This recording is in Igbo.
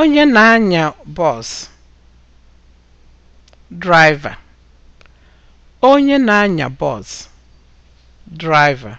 Onye na-anya bọs draiva